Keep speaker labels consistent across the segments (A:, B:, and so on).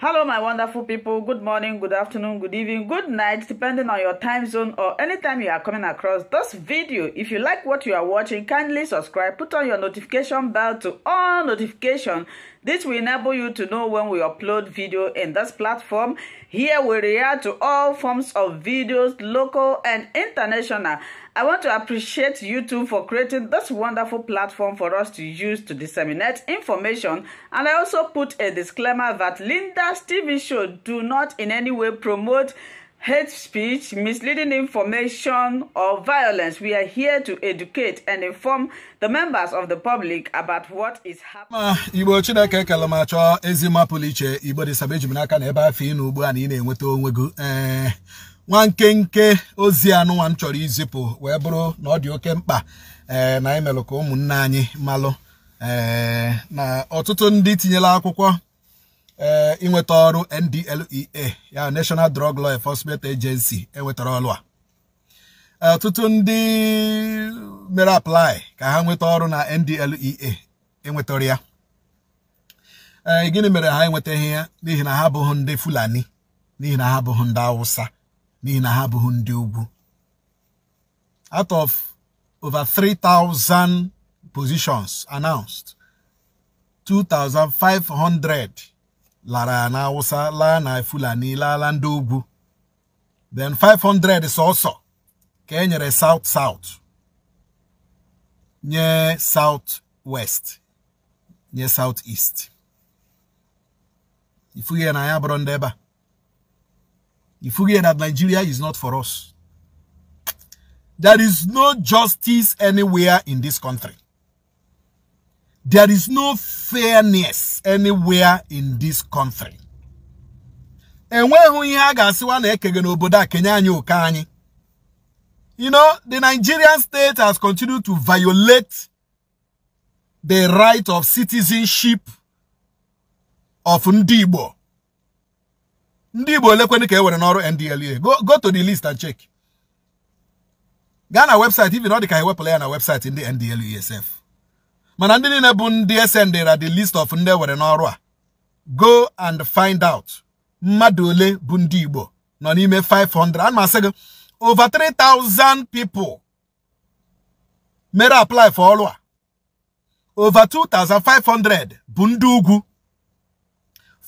A: Hello, my wonderful people. Good morning, good afternoon, good evening, good night, depending on your time zone or any time you are coming across this video. If you like what you are watching, kindly subscribe, put on your notification bell to all notifications. This will enable you to know when we upload video in this platform. Here we react to all forms of videos, local and international. I want to appreciate YouTube for creating this wonderful platform for us to use to disseminate information. And I also put a disclaimer that Linda's TV show do not in any way promote hate speech, misleading information, or violence. We are here to educate and inform the members of the public about what is
B: happening. Igbo Chineke kele m achọ ezi mapụlụ iche Igbo dị saba eji n'aka na afọ ị n'ugbu a na ị na-enweta onwe gị eh, nwa nkenke ozi anụnwa m chọrọ izipụ wee bụrụ na ọ dị oke mkpa eh, na anyị melụ ka ụmụnne anyị malụ eh, na ọtụtụ ndị tinyela akwụkwọ ịnweta eh, ọrụ NDLEA ya National Drug Law Enforcement Agency enwetara ọrụ a eh, ọtụtụ ndị mere apply ka ha nweta ọrụ na NDLEA enwetara ya eh, e, gịnị mere ha enwetaghị ya n'ihi na ha abụghị ndị Fulani n'ihi na ha abụghị ndị Awụsa n'ihi na ha abụghị ndị ugwu out of over 3,000 positions announced 2,500 lara na awụsa laa na fulani then 500 is also Kenya south south nye south west nye south east are na ya bụrụ ndị ebe that nigeria is not for us there is no justice anywhere in this country there is no fairness anywhere in this country. And when a ga-asịwa na ekege n'obodo a kenye anyị you know the nigerian state has continued to violate the right of citizenship of ndị igbo ndị igbo olekwenị ka e ndla go, go to the list and check gaa our website even they dị ka ewepụla on na website in ndla esf mana ndị niile bụ ndị sendera the list of ndị ewere n'ọrụ a go and find out mmadụ ole bụ ndị Igbo nọ n'ime 500 a m asị gị over 3000 people mere apply for ọrụ a over 2500 bụ ndị ugwu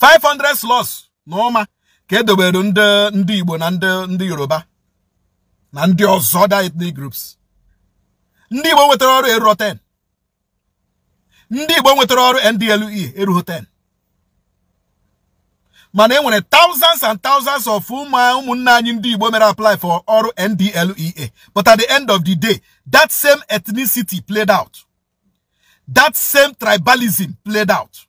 B: 500 slots na ụma ka edobere ndị Igbo na ndị ndị Yoruba na ndị ọzọ dị groups ndị Igbo nwetara ọrụ eru 10 ndị Igbo nwetara ọrụ NDLEA erughị 10 mana e nwere thousands and thousands of ụmụnne anyị ndị Igbo mere apply for ọrụ NDLEA but at the end of the day that same ethnicity played out that same tribalism played out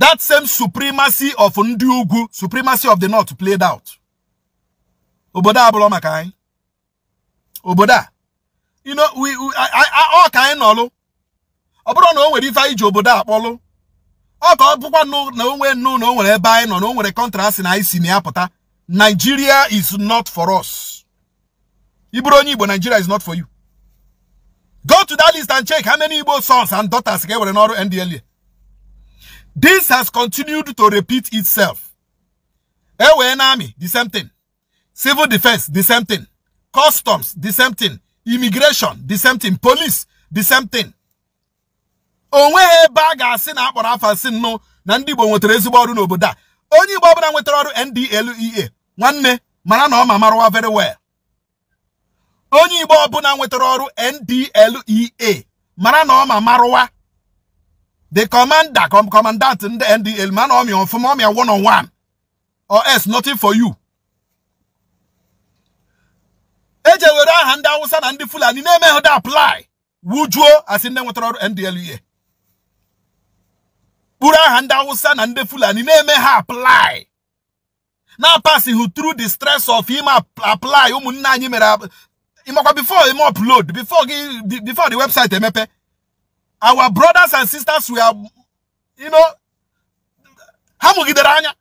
B: that same supremacy of ndị ugwu supremacy of the north played out obodo a bụrụ maka anyị obodo a you know we, we I, I, all kind of ọ no na o nwere ife anyị ji obodo akpọlụ ọ ka no, bụkwa na onwe nnu na o ebe anyị nọ na o contrast kọntrasị na anyị si na Nigeria is not for us ịbụrụ onye Igbo Nigeria is not for you go to that list and check how many Igbo sons and daughters ka e were n'ọrụ NDLA this has continued to repeat itself e wee the same thing civil defense the same thing customs the same thing immigration the same thing police the same thing onweghị ebe a ga-asị na akpọrọ afa si nnụ na ndị Igbo nwetara ezigbo ọrụ n'obodo a onye Igbo ọbụla nwetara ọrụ NDLEA nwanne mara na ọ ma marụwa very well onye Igbo ọbụla nwetara ọrụ NDLEA mara na ọ ma marụwa the commander commandant ndị NDL e ma na ọmịa ọfụma ọmịa one on one or else nothing for you eje were aha ndị Hausa na ndị Fulani na-emeghị dị apply wujuo asị ndị nwetara ọrụ NDLEA kpuru aha ndị awụsa na ndị fulani na-eme ha apply na pasịghị through the stress of him apply ụmụnne anyị mere ịmakwa before him upload before gị before the website emepe our brothers and sisters were you know ha mụgidere anya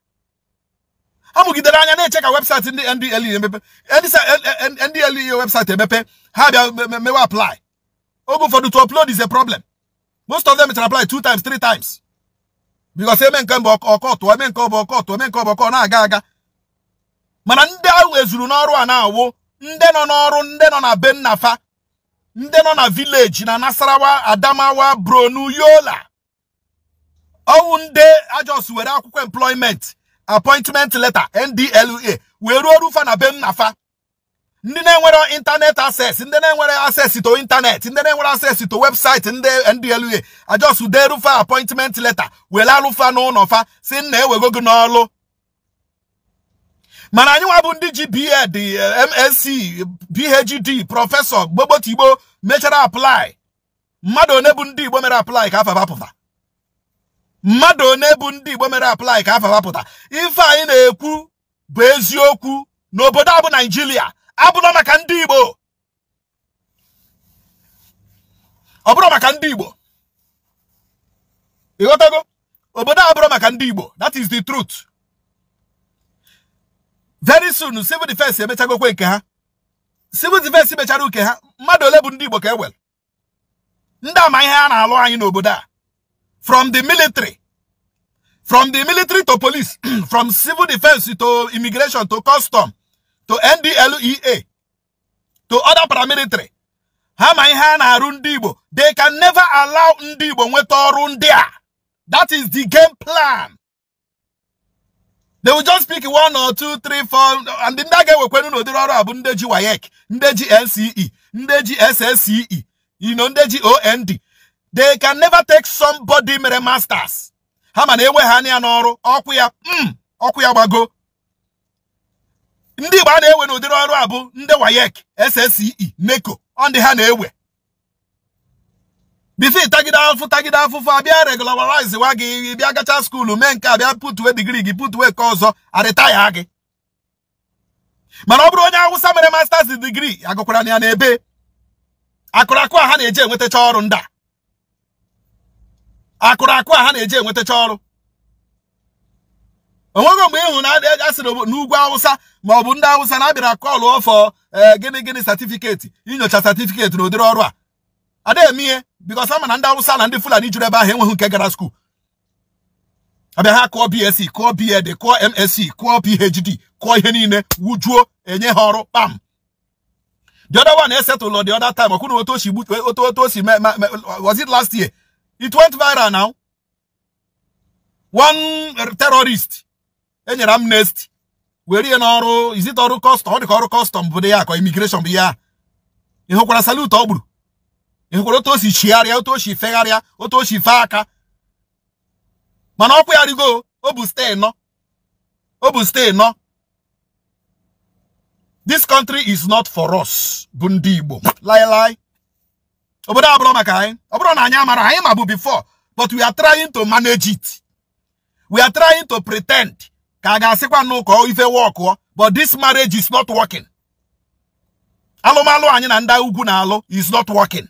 B: ha mụgidere anya na-eche ka website ndị ndle emepe ndle website emepe ha bịa mewe apply for the to upload is a problem most of them it apply two times three times because eme nke mbụ eme nke ọ ọkọ ọkọtụ eme nke ọkọ na-aga aga mana ndị ahụ ezuru n'ọrụ a na-awụ ndị nọ n'ọrụ ndị nọ na benafa ndị nọ na vileji na Nasarawa Adamawa Bronu, Yola ọnwụ nde ajọs were akwụkwọ employment appointment leta NDLEA wee ruo orufa na be ndị na-enwere ịntanet access ndị na-enwere access to ịntanet ndị na-enwere access to webụsaịtị ndị ndla ajọsụ derufa appointment leta were alụfa n'ụlọ fa si nna ewego gị n'ọlụ mana anyị nwa bụ ndị ji BEd MSc PhD prọfesọ gbogbotigbo mechara aplai mmadụ one bụ ndị Igbo mere apply ka afa mmadụ one bụ ndị Igbo mere apply ka afa ife anyị na-ekwu bụ eziokwu n'obodo a bụ Naijiria abụrọ maka ndị Igbo ọ bụrụ maka ndị Igbo ịghọtago obodo a bụrụ maka ndị Igbo that is the truth very soon civil defense emechagokwe nke ha civil defense mechara uke ha mmadụ ole bụ ndị Igbo ka e wel ndị ama ihe a na-alụ anyị n'obodo a from the military from the military to police from civil defense to immigration to custom to NDLEA to other paramilitary ha ma ihe a na-arụ ndị Igbo they can never allow ndị Igbo nweta ọrụ ndị a that is the game plan they will just pick one or two three four and ndị a ga-ewekwenu n'ụdịrị ọrụ a bụ ndị ji WAEC ndị ji NCE ndị ji SSCE you OND they can never take somebody mere masters ha ma na enwe ha anya n'ọrụ ọkụ ya mm, ọkụ ya gbago ndị Igbo a na-ewe n'ụdịrị ọrụ a bụ ndị WAEC SSCE NECO ọ ndị ha na-ewe bifi tagide afụ tagide afụfụ abịa regularize wa gị bịa gacha skuulu mee nke abịa putwe digri gị putuwe nke ọzọ arịtaya gị mana ọ bụrụ onye Awụsa mere masters digri agụkwara ya n'ebe akụrakụ a ha na-eji enwetacha ọrụ ndị a akụrakụ a ha na-eji enwetacha ọrụ onwego mgbe ịhụ na asịrị n'ugwu awụsa ma ọ bụ ndị awụsa na-abịara kọlụ ọfọ e, gịnị gịnị satifiketi inyocha satifiketi na ụdịrị ọrụ a ada eme ihe bikos ama na ndị awụsa na ndị fulani juru ebe ahụ enweghị nke gara skuul abịa ha kụọ bsc kụọ bed kụọ msc kụọ phd kụọ ihe niile wujuo enye ha ọrụ kpam the other one esetụlụ the other time ọkwụna otu osi otu otu osi was it last year it went viral now one terrorist enyere m nest were ihe n'ọrụ izite ọrụ kọstọm ọ dị ka ọrụ kọstọm bụ ya akọ imigreshọn bụ ihe a ị hụkwara salut ọ gburu ị hụkwara otu o si chigharịa otu o si fegharịa otu o si fee aka mana ọkwa ya rigo o bụ stee nọ o bụ stee nọ this country is not for us bụ ndị Igbo laịlaị obodo abụrụ maka anyị ọ bụrụ na anyị amara anyị ma bụ before but we are trying to manage it we are trying to pretend ka a ga-asịkwa n'ụkọ ife wọkụọ but this marriage is not working alụmalụ anyị na ndị ugwu na-alụ is not working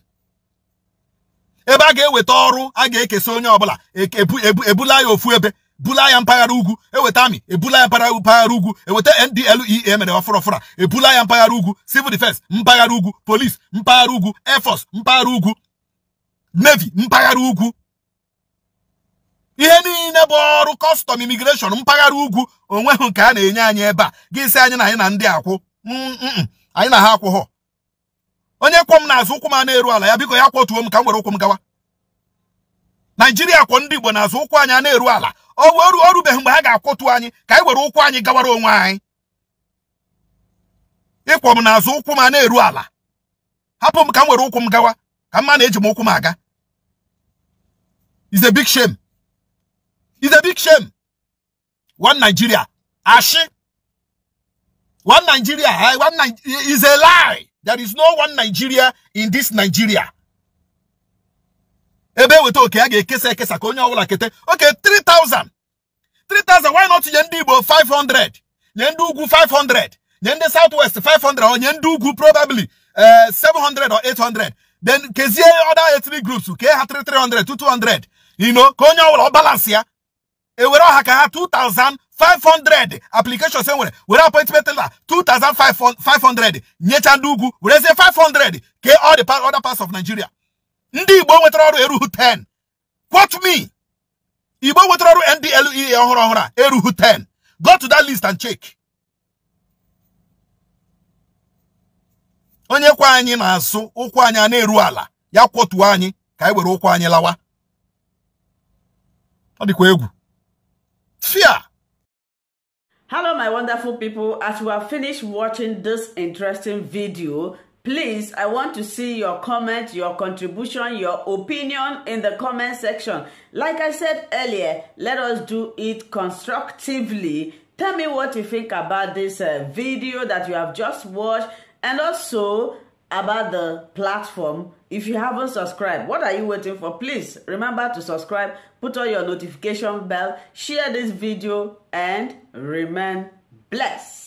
B: ebe a ga-eweta ọrụ a ga-ekesa onye ọbụla ebula ya ofu ebe bula ya mpaghara ugwu eweta amị ebula ya mpaghara ugwu eweta NDLEA e, e mere ọfụrọfụra ebula ya mpaghara ugwu civil defense mpaghara ugwu police mpaghara ugwu air mpaghara ugwu navy mpaghara ugwu ihe niile bụ ọrụ kọstọm imigreshọn mpaghara ugwu onweghị nke a na-enye anyị ebe a ga sị anyị na anyị na ndị akwụ mm, mm, mm. anyị na ha akwụghọ onye kwọ m n'azụ ụkwụ m a na-eru ala ya biko ya kwọtuo m ka m were ụkwụ m gawa naijiria kwọ ndị igbo n'azụ ụkwụ anyị a na-eru ala o rubeghị mgbe ha ga-akwọtu anyị ka anyị were ụkwụ anyị gawara onwe anyị ịkwọ m n'azụ ụkwụ m a na-eru ala hapụ m ka m were ụkwụ m gawa ka mma na-eji m ụkwụ m aga is big shame It's a big shame. One Nigeria. Ashi. One Nigeria. Eh? One Nigeria is a lie. There is no one Nigeria in this Nigeria. Ebe weta oke a ga-ekesa ekesa ka kete. Okay, 3000. 3000 why not nye 500? Yendugu 500. Yende Southwest 500 or Yendugu probably uh, eh, 700 or 800. Then kezie other ethnic groups Okay, ha 300 to 200. You know, ka onye balance here. ewere ọha ka ha 2500 applications e nwere were appointment letter 2500 nyecha ndị ugwu werezie 500 ke all the other parts of Nigeria ndị Igbo nwetara ọrụ eruhu 10 quote me Igbo nwetara ọrụ NDLEA ọhụrụ ọhụrụ a eruhu 10 go to that list and check onye kwa anyị na-asụ ụkwụ anyị a na-eru ala ya kwọtuo anyị ka anyị were ụkwụ anyị lawa ọ dịkwa egwu
A: fear. Hello, my wonderful people. As we have finished watching this interesting video, please, I want to see your comment, your contribution, your opinion in the comment section. Like I said earlier, let us do it constructively. Tell me what you think about this uh, video that you have just watched and also about the platform if you haven't subscribed what are you waiting for please remember to subscribe put on your notification bell share this video and remain blessed